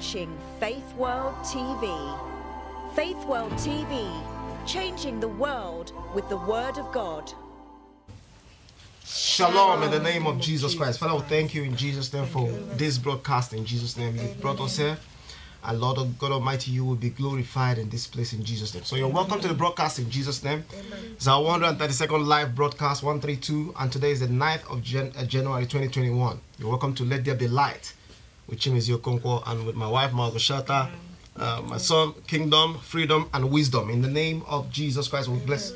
watching Faith World TV. Faith World TV, changing the world with the Word of God. Shalom in the name of Jesus Christ. Father, thank you in Jesus' name for this broadcast. In Jesus' name, you brought us here. And Lord of God Almighty, you will be glorified in this place in Jesus' name. So you're welcome to the broadcast in Jesus' name. It's our 132nd live broadcast, 132, and today is the 9th of Jan uh, January 2021. You're welcome to Let There Be Light with Chimizio Okonkwo, and with my wife, Margoshata. Shata, Uh, my son, kingdom, freedom, and wisdom. In the name of Jesus Christ, we bless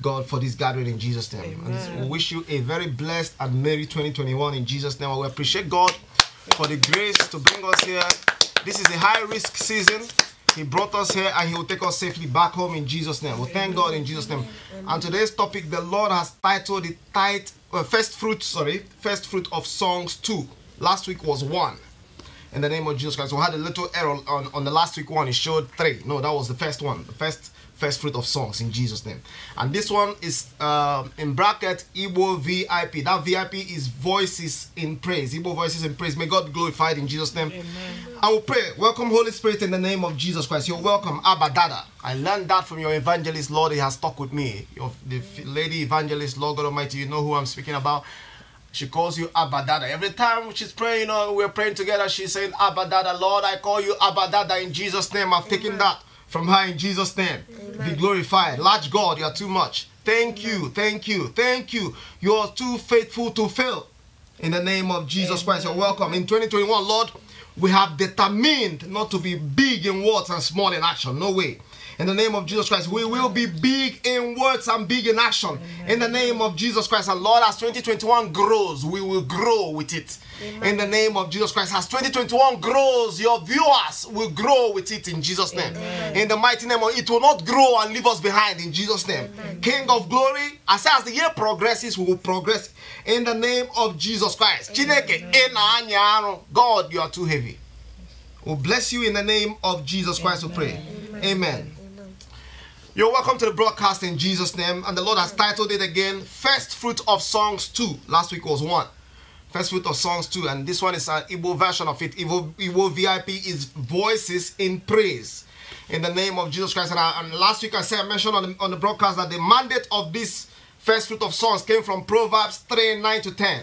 God for this gathering in Jesus' name. Amen. And we wish you a very blessed and merry 2021 in Jesus' name. We appreciate God for the grace to bring us here. This is a high risk season. He brought us here and He will take us safely back home in Jesus' name. We well, thank God in Jesus' name. And today's topic, the Lord has titled the tight, uh, first fruit, sorry, first fruit of songs two. Last week was one in the name of Jesus Christ. We had a little error on, on the last week one. It showed three. No, that was the first one. The first first fruit of songs in Jesus' name. And this one is uh, in bracket Igbo VIP. That VIP is voices in praise. Igbo voices in praise. May God glorified in Jesus' name. Amen. I will pray. Welcome, Holy Spirit, in the name of Jesus Christ. You're welcome, Abba Dada. I learned that from your evangelist, Lord. He has stuck with me. Your, the lady evangelist, Lord God Almighty. You know who I'm speaking about. She calls you Abba Dada. Every time she's praying or we're praying together, she's saying, Abba Dada, Lord, I call you Abba Dada in Jesus' name. I've taken that from her in Jesus' name. Amen. Be glorified. Large God, you are too much. Thank Amen. you, thank you, thank you. You are too faithful to fail. In the name of Jesus Christ, you're welcome. In 2021, Lord, we have determined not to be big in words and small in action. No way. In the name of Jesus Christ, we will be big in words and big in action. Amen. In the name of Jesus Christ, and Lord, as 2021 grows, we will grow with it. Amen. In the name of Jesus Christ, as 2021 grows, your viewers will grow with it in Jesus' name. Amen. In the mighty name of it will not grow and leave us behind in Jesus' name. King of glory, as, as the year progresses, we will progress in the name of Jesus Christ. God, you are too heavy. we we'll bless you in the name of Jesus Christ, we pray. Amen. You're welcome to the broadcast in Jesus' name. And the Lord has titled it again First Fruit of Songs 2. Last week was 1. First Fruit of Songs 2. And this one is an Igbo version of it. Igbo, Igbo VIP is Voices in Praise. In the name of Jesus Christ. And, I, and last week I said, I mentioned on the, on the broadcast that the mandate of this First Fruit of Songs came from Proverbs 3 9 to 10.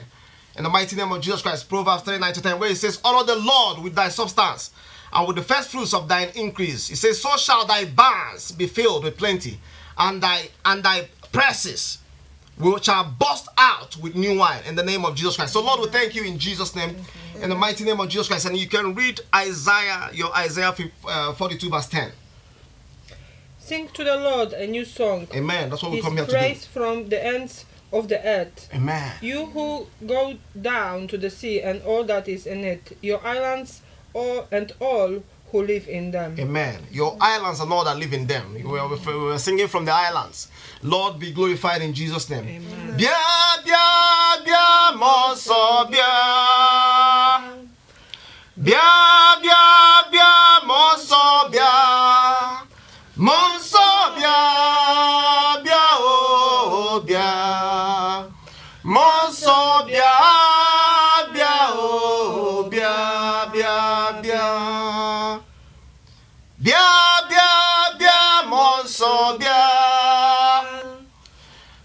In the mighty name of Jesus Christ, Proverbs 3 9 to 10, where it says, Honor the Lord with thy substance and with the first fruits of thine increase. He says, So shall thy barns be filled with plenty, and thy and thy presses will shall burst out with new wine in the name of Jesus Christ. So Lord, we thank you in Jesus' name, in the mighty name of Jesus Christ. And you can read Isaiah, your Isaiah uh, 42 verse 10. Sing to the Lord a new song. Amen. That's what His we come here to do. praise from the ends of the earth. Amen. You who go down to the sea and all that is in it, your islands all and all who live in them. Amen. Your islands and all that live in them. We are we singing from the islands. Lord be glorified in Jesus' name. Bia, bia, bia, moso, bia. Bia,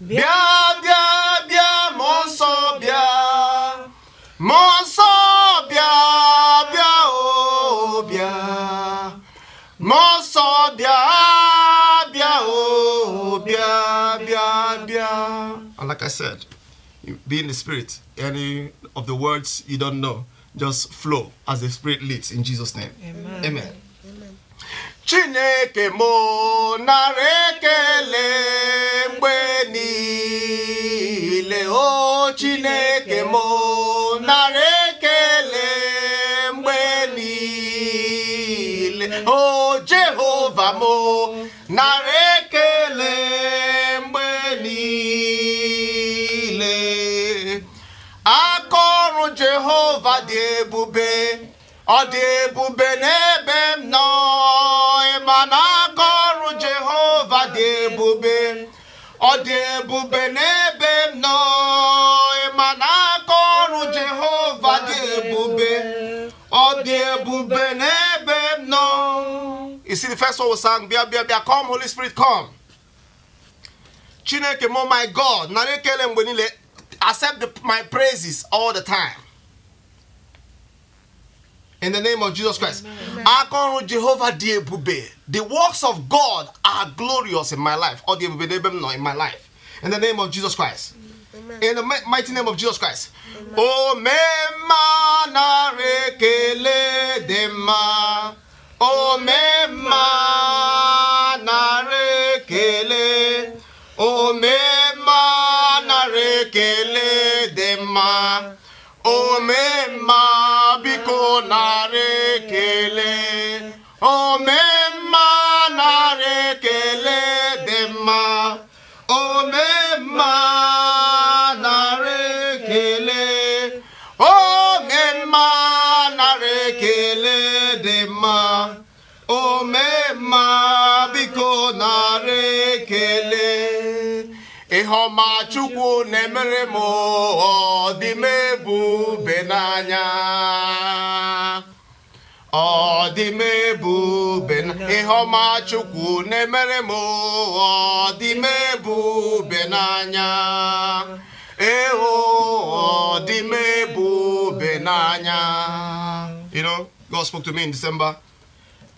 bịa bịa bịa mmụọ bịa mmụọ bịa bịa o oh, bịa mmụọ bịa bịa o oh, bịa bịa bịa and like i said be in the spirit any of the words you don't know just flow as the spirit leads in jesus name amen, amen. chineke mo nara ekele mgbe niile chineke m nara ekele mgbe niile o jehova m nara ekele mgbe niile aka jehova dị ebube ọ dị ebube na You see, the first one was sang, Bia, Bia, Bia, come, Holy Spirit, come. Chineke, mo my God, accept the, my praises all the time. In the name of Jesus Christ. Amen. Jehovah The works of God are glorious in my life. Or in my life. In the name of Jesus Christ. In the mighty name of Jesus Christ. Amen. O me manare dema for me, ịhụma Chukwu na-emere m ọ dị m ebube n'anya ọ dị m Chukwu na-emere m ọ dị m n'anya eho ọ dị n'anya You know, God spoke to me in December.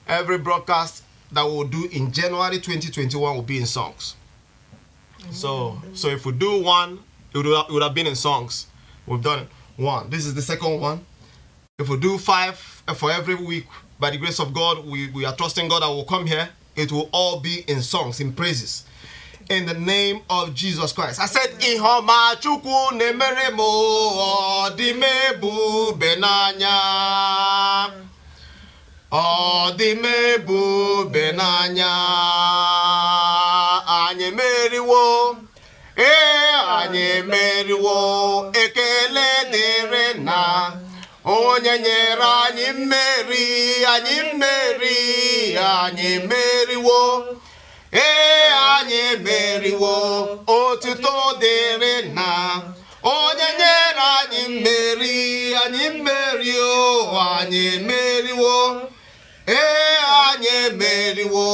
Every broadcast that we'll do in January 2021 will be in songs. So so if we do one, it would, have, it would have been in songs. We've done One. This is the second one. If we do five uh, for every week, by the grace of God, we, we are trusting God that will come here. It will all be in songs, in praises. In the name of Jesus Christ. I said, Ihoma chukwu nemere mo odimebu benanya. Odimebu benanya. onye nyere anyị mmeri anyị mmeri anyị meriwo ee anyị meriwo otuto dịrị na onye nyere anyị mmeri anyị mmeri o anyị emeriwo ee anyị emeriwo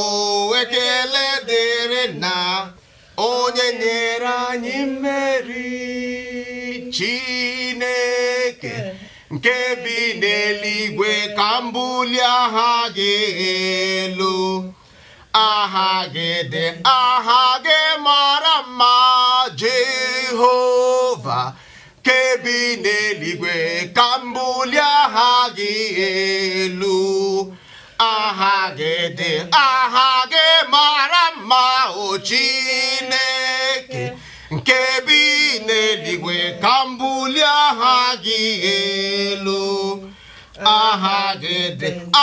ekele dịrị na onye nyere anyị mmeri Chineke nke bi n'eluigwe ka mbuli aha gị elu aha gị dị aha gị mara mma Jehova nke bi n'eluigwe ka aha gị elu aha gị dị aha gị mara mma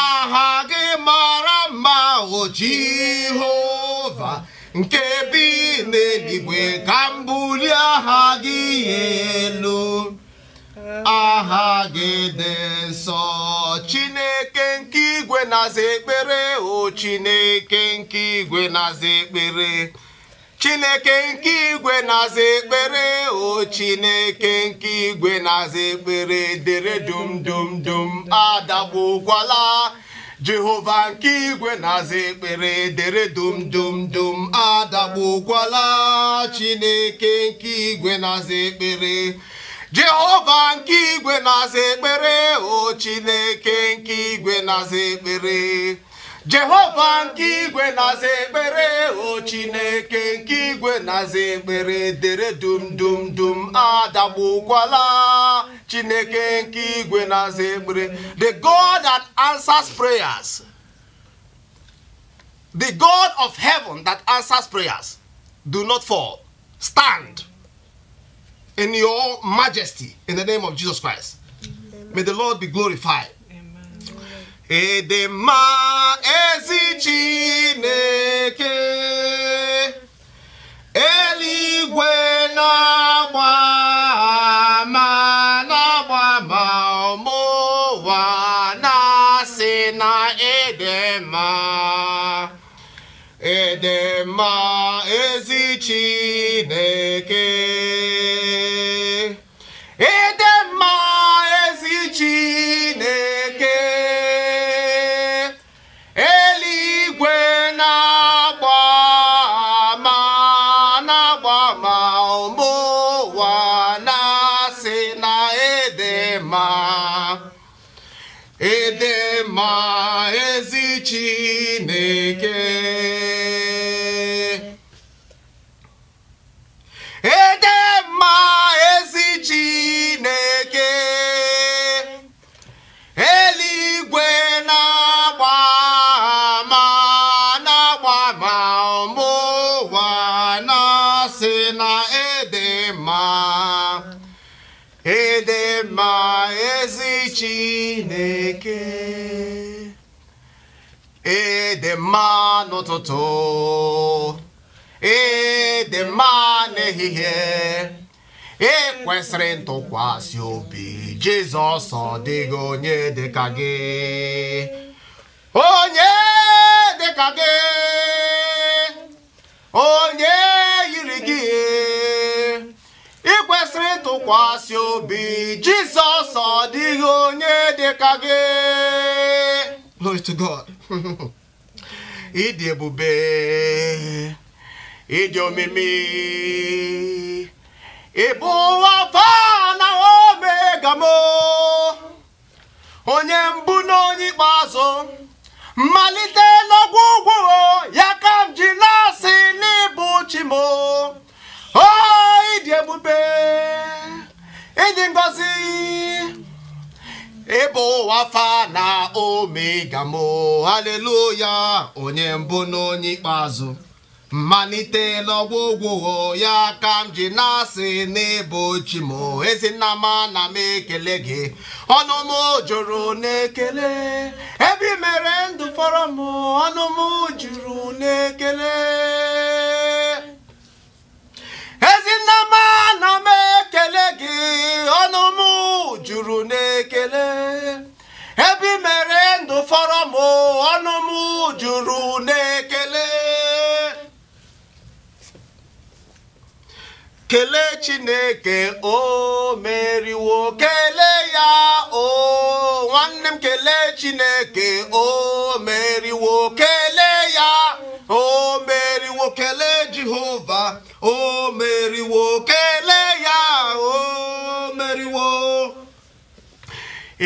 aha gị mara mma o Jehova nke bi n'eluigwe ka m aha gị ihe elu aha gị dị nsọ Chineke nke igwe na ekpere o Chineke nke igwe na-aza ekpere chineke nke igwe na-aza ekpere o chineke nke igwe na-aza ekpere dere dum dum dum adagbukwala jehova nke igwe na-aza ekpere dere dum dum dum adagbukwala chineke nke igwe na-aza ekpere jehova nke igwe na-aza ekpere o chineke nke igwe na-aza ekpere jehova nke igwe na-aza o chineke nke igwe na-aza ekpere dere dum dum dum adagbukwala chineke nke igwe na-aza the god that answers prayers the god of heaven that answers prayers do not fall stand in your majesty in the name of jesus christ may the lord be glorified Edema mma ezi Chineke eluigwe na-agba ama na-agba ama ọmụwa na-asị na Edema mma ede mma ezi Chineke ede mma ede mma ezi Chineke ede mma n'ụtụtụ ede mma n'ehihie ekwesịrị ntụkwasị obi Jizọs ọ dịghị onye dịka gị onye dịka gị onye yiri gị ị kwesịrị ịtụkwasị obi jizọs ọ dịghị onye dị ka gị ịdị ebube ịdị omimi ịbụ na omega onye mbụ na onye ikpeazụ mmalite n'ọgwụgwụ mbụ ịdị ebube ịdị ngọzi ịbụ wafa ome na mbụ mo haleluya onye mbụ n'onye ikpeazụ mmalite n'ọgwụgwụ ya ka m ji na-asị n'ebe m ezinama na m ekele gị ọnụ m n'ekele ebe ị mere ndụ fọrọ ọnụ m jụrụ n'ekele ezinnama na m ekele gị ọnụ m juru n'ekele ebe i mere ndụ fọrọ m ọnụ m juru n'ekele kelee chineke o meriwo kelee ya o nwanne m kelee chineke o mere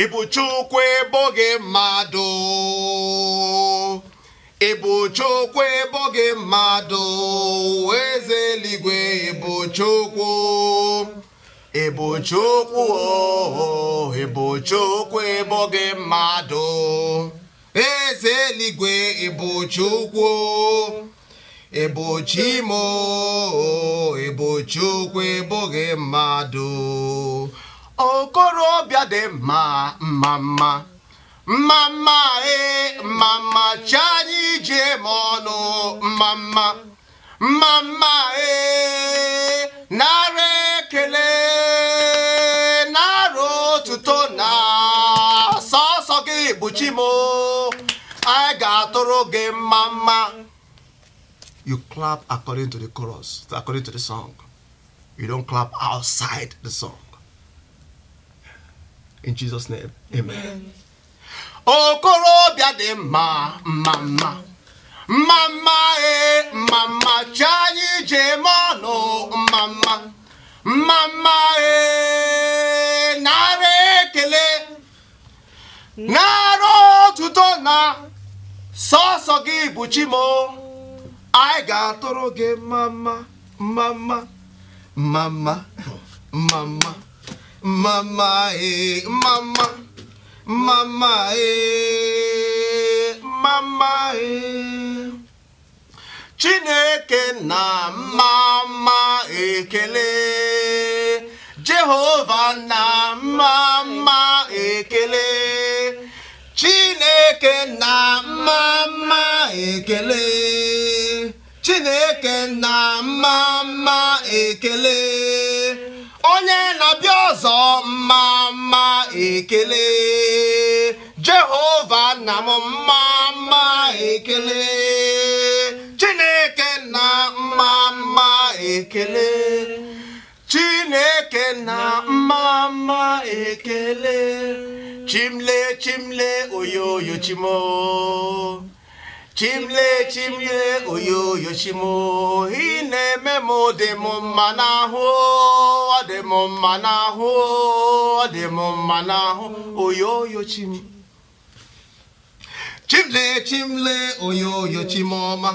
ịbụ Chukwu ebo gị mmadụ ịbụ Chukwu ebo gị mmadụ eze eluigwe ịbụ Chukwu ịbụ Chukwu o oh, ịbụ Chukwu ebo gị mmadụ eze eluigwe ịbụ Chukwu ịbụ Chimo ịbụ oh, Chukwu ebo gị mmadụ okorobịa dị mma mma mma mma mma ee mma mma chi anyị jee ma ọnụ mma mma mma mma ee nara ekele nara otuto na sọsọ gị bụ chi m anyị ga-atụrụ gị mma mma you clap according to the chorus according to the song you don't clap outside the song in Jesus name amen okorobịa dị mma mma mma mma e, mma mma mma chi anyị ji mọnụ mma mma mma mma ee narị ekele narị otuto na sọsọ gị bụ chimo anyị ga-atụrụ gị mma mma mma mma mma mma mma mama eh, mama, mama eh, mama eh. Chineke na mama ekele, Jehova na mama ekele, Chineke na mama ekele, Chineke na mama ekele. onye na-abịa ọzọ mma mma ekele jehova nna m mma mma ekele chineke na mma mma ekele chineke na mma mma ekele chimle chimle oyoyo chimoo chimle chimle oyoyo chimo ị na-eme m dị m mma n'ahụ ọ dị m mma n'ahụ ọ dị m mma n'ahụ oyo chim chimle chimle oyoyo ọma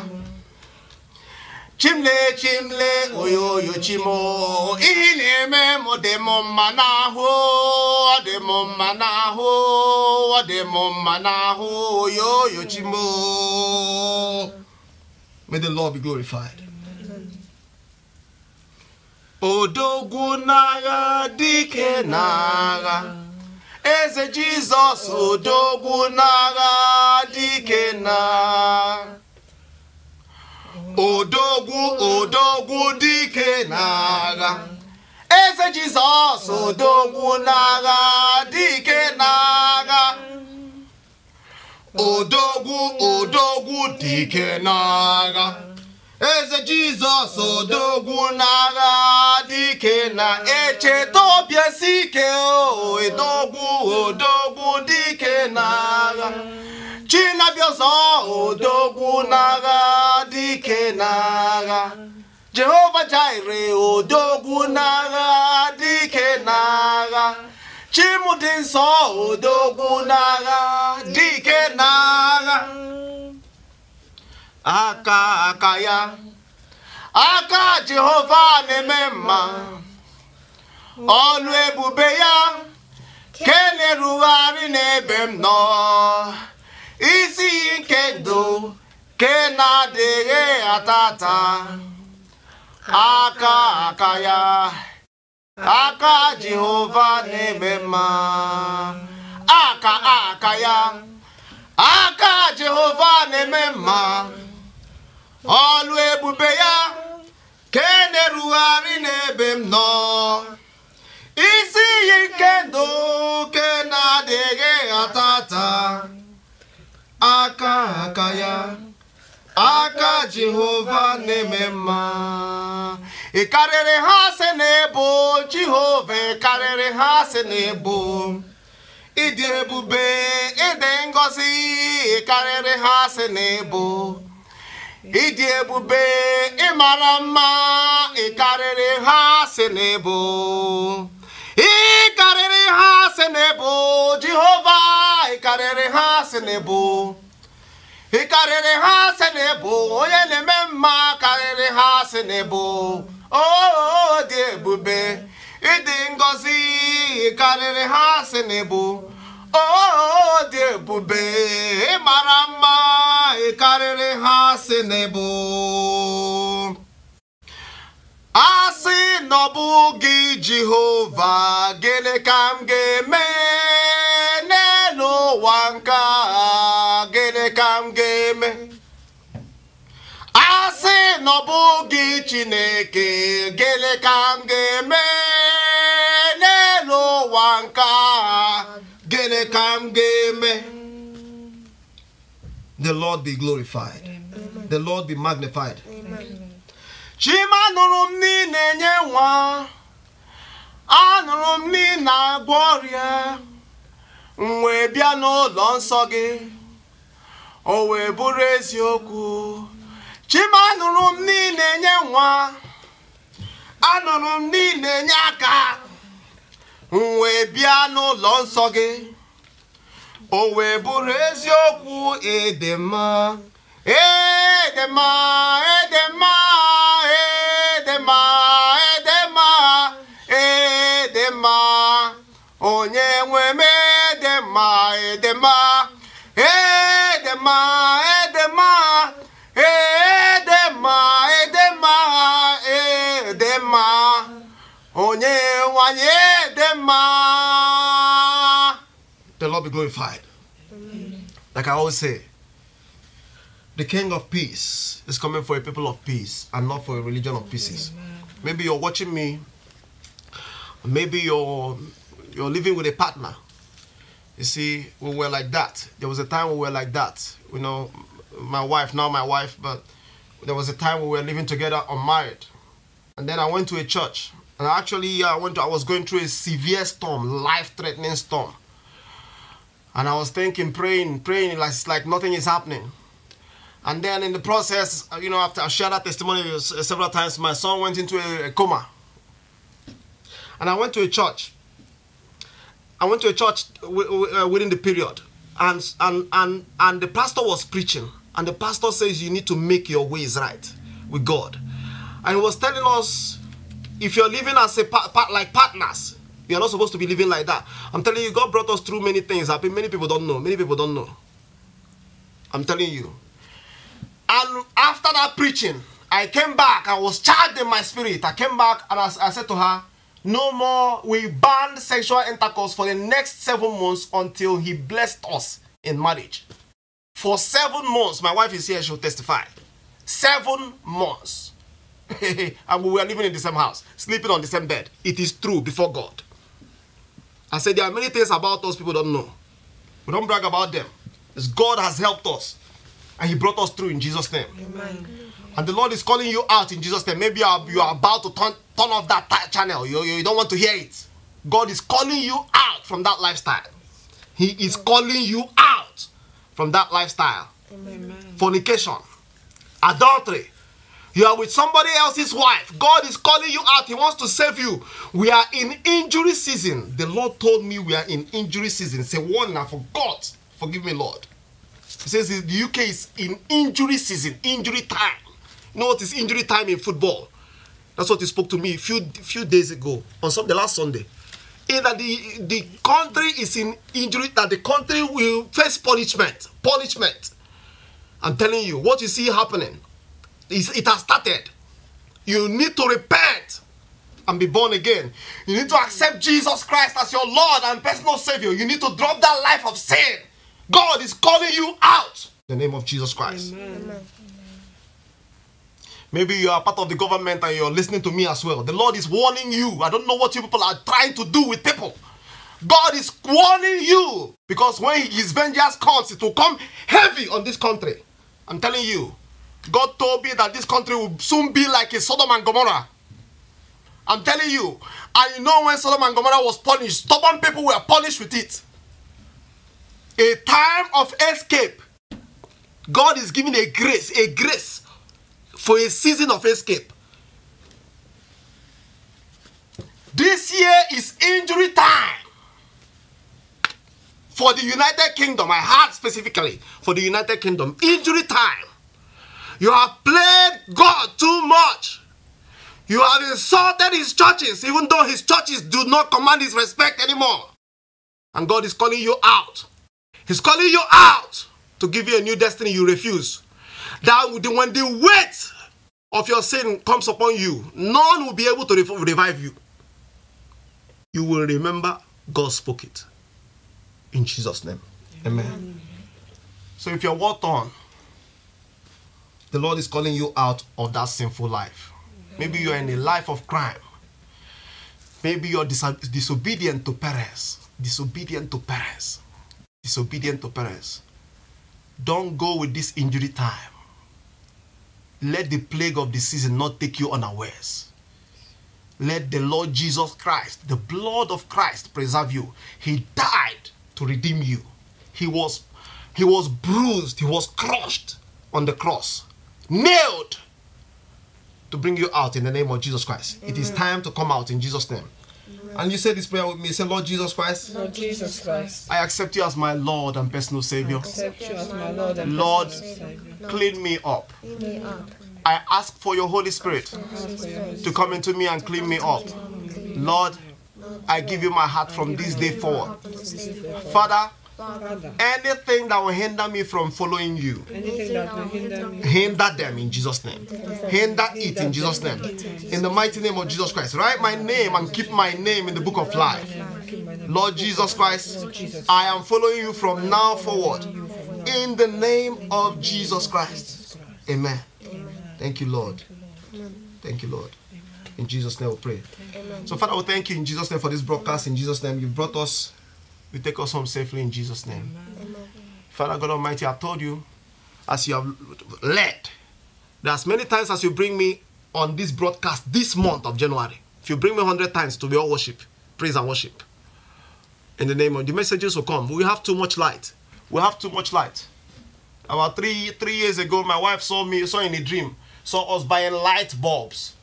chimle chimle oyoyo chimo ihe na-eme m dị m mma n'ahụ ọ dị m mma n'ahụ ọ dị m mma n'ahụ oyoyo chimo may the lord be glorified odogwu n'agha dike n'agha eze jizọs odogwu n'agha dike n'agha eze jizọs odogwu n'agha dike n'agha odogwu odogwu dike n'agha eze jizọs odogwu n'agha dike na-echeta obi esi ike odogwu odogwu dike n'agha Chinabiozọ ọzọ odogwu n'agha dike n'agha jehova jire odogwu n'agha dike n'agha dị nsọ odogwu n'agha dike n'agha aka aka ya aka jehova na-eme mma ọlụ ebube ya kenerugharị n'ebe m nọ isi nke ndụ ke na-adịghị atata aka aka ya aka jehova na-eme mma aka aka ya aka jehova na-eme mma ọlụ ebube ya ka e na-erugharị n'ebe m nọ isi iyi nke ndụ ke na-adịghị atata aka aka ya aka jehova na-eme mma ị karịrị ha sị na ebo jehova karịrị ha sị na ebo ịdị ebube ịdị ngọzi ị karịrị ha sị na ebo ịdị ebube ịmara mma ị karịrị ha sị na ebo ị karịrị ha sị na ebo jehova karịrị ha sị na ebo ị karịrị ha asị na ịbụ onye na-eme mma karịrị ha asị na ịbụ oo dị ebube ịdị ngọzi karịrị ha asị na ịbụ ooo dị ebube ịmara mma karịrị ha asị na ịbụ asị nọbụ gị Jehova gịnị ka m ga-eme ka m ga-eme a sị na ọ bụghị Chineke gịnị ka m ga-eme n'elu ụwa nke agha gịnị ka m ga-eme the Lord be glorified the Lord be magnified chima nụrụ m na enye nwa anụrụ m na ị agwọ ọrịa m wee bịa n'ụlọ nsọ gị o wee bụrụ eziokwu chima anụrụ m niile nye nwa anụrụ m niile nye aka m wee bịa n'ụlọ nsọ gị o wee bụrụ eziokwu ịdị mma ịdị mma ịdị mma onye nwe m ịdị mma God be glorified. Amen. Like I always say, the King of Peace is coming for a people of peace and not for a religion of pieces. Maybe you're watching me. Maybe you're you're living with a partner. You see, we were like that. There was a time we were like that. You know, my wife, now my wife, but there was a time we were living together unmarried. And then I went to a church. And actually, I went to, I was going through a severe storm, life-threatening storm. And I was thinking, praying, praying, like, it's like nothing is happening. And then in the process, uh, you know, after I shared that testimony uh, several times, my son went into a, coma. And I went to a church. I went to a church uh, within the period. And, and, and, and the pastor was preaching. And the pastor says, you need to make your ways right with God. And he was telling us, if you're living as a like partners, we are not supposed to be living like that. I'm telling you, God brought us through many things. I mean, many people don't know. Many people don't know. I'm telling you. And after that preaching, I came back. I was charged in my spirit. I came back and I, I said to her, no more. We banned sexual intercourse for the next seven months until he blessed us in marriage. For seven months, my wife is here, she'll testify. Seven months. and we were living in the same house, sleeping on the same bed. It is true before God. I said there are many things about us people don't know. We don't brag about them. It's God has helped us. And he brought us through in Jesus' name. Amen. And the Lord is calling you out in Jesus' name. Maybe you are, about to turn, turn off that channel. You, you, don't want to hear it. God is calling you out from that lifestyle. He is calling you out from that lifestyle. Amen. Fornication, adultery, you are with somebody else's wife. God is calling you out. He wants to save you. We are in injury season. The Lord told me we are in injury season. Say, one, I forgot. Forgive me, Lord. He says the UK is in injury season, injury time. You know what is injury time in football? That's what he spoke to me a few, few days ago, on some, the last Sunday. In that the, the country is in injury, that the country will face punishment. Punishment. I'm telling you, what you see happening it has started. You need to repent and be born again. You need to accept Jesus Christ as your Lord and personal Savior. You need to drop that life of sin. God is calling you out. In the name of Jesus Christ. Amen. Maybe you are part of the government and you're listening to me as well. The Lord is warning you. I don't know what you people are trying to do with people. God is warning you because when His vengeance comes, it will come heavy on this country. I'm telling you. God told me that this country will soon be like a Sodom and Gomorrah. I'm telling you, I know when Sodom and Gomorrah was punished, stubborn people were punished with it. A time of escape. God is giving a grace, a grace for a season of escape. This year is injury time for the United Kingdom. I had specifically for the United Kingdom. Injury time. You have played God too much. You have insulted his churches, even though his churches do not command his respect anymore. And God is calling you out. He's calling you out to give you a new destiny you refuse. That when the weight of your sin comes upon you, none will be able to revive you. You will remember God spoke it. In Jesus' name. Amen. Amen. So if you're walked on the Lord is calling you out of that sinful life. Maybe you're in a life of crime. Maybe you're dis disobedient to parents. Disobedient to parents. Disobedient to parents. Don't go with this injury time. Let the plague of the season not take you unawares. Let the Lord Jesus Christ, the blood of Christ, preserve you. He died to redeem you. He was, he was bruised, he was crushed on the cross nailed to bring you out in the name of Jesus Christ. Amen. It is mm. time to come out in Jesus' name. And you say this prayer with me. Say, Lord Jesus Christ. Lord Jesus Christ. I accept you as my Lord and personal Savior. I accept you as my Lord and Lord, personal Lord, clean me up. Clean me up. I ask for your Holy Spirit to come into me and clean me up. Lord, I give you my heart from this day forward. Father, Father. Anything that will hinder me from following you, hinder hinder them in Jesus' name. Hinder it in Jesus' name. In the mighty name of Jesus Christ. Write my name and keep my name in the book of life. Lord Jesus Christ, I am following you from now forward. In the name of Jesus Christ. Amen. Thank you, Lord. Thank you, Lord. In Jesus' name we pray. So, Father, we thank you in Jesus' name for this broadcast. In Jesus' name, you brought us you take us home safely in Jesus' name. Amen. Amen. Father God Almighty, I told you, as you have led, that as many times as you bring me on this broadcast this month of January, if you bring me 100 times to be all worship, praise and worship, in the name of the messages will come. We have too much light. We have too much light. About three three years ago, my wife saw me saw in a dream saw us buying light bulbs.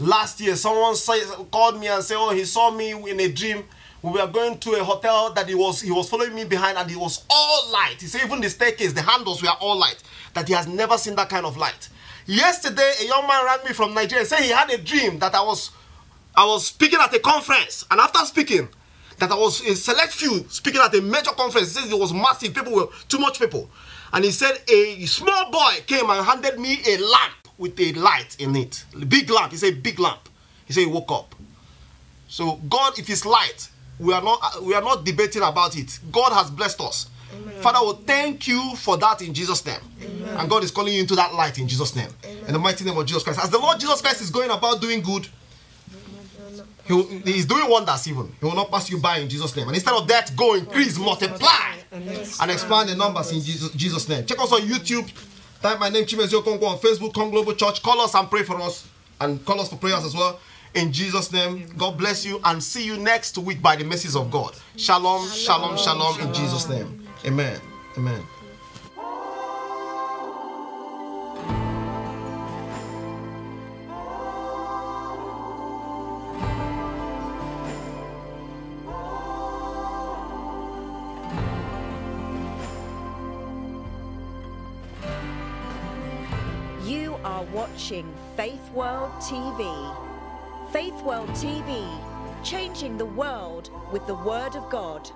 Last year, someone say, called me and said, "Oh, he saw me in a dream we were going to a hotel that he was he was following me behind and it was all light. He said even the staircase, the handles were all light. That he has never seen that kind of light. Yesterday, a young man rang me from Nigeria saying said he had a dream that I was I was speaking at a conference, and after speaking, that I was in select few speaking at a major conference. He says it was massive, people were too much people. And he said a small boy came and handed me a lamp with a light in it. Big lamp. He said, big lamp. He said he woke up. So God, if it's light, we are not uh, we are not debating about it. God has blessed us. Amen. Father, we thank you for that in Jesus' name. Amen. And God is calling you into that light in Jesus' name. Amen. In the mighty name of Jesus Christ. As the Lord Jesus Christ is going about doing good, he will, he's doing wonders even. He will not pass you by in Jesus' name. And instead of that, go increase, multiply, and expand the numbers in Jesus, Jesus name. Check us on YouTube. Type my name, Chimezio Kongo, on Facebook, Kong Global Church. Call us and pray for us. And call us for prayers as well. In Jesus' name, God bless you and see you next week by the mercies of God. Shalom, shalom, shalom, shalom in Jesus' name. Amen. Amen. You are watching Faith World TV. Faith World TV, changing the world with the Word of God.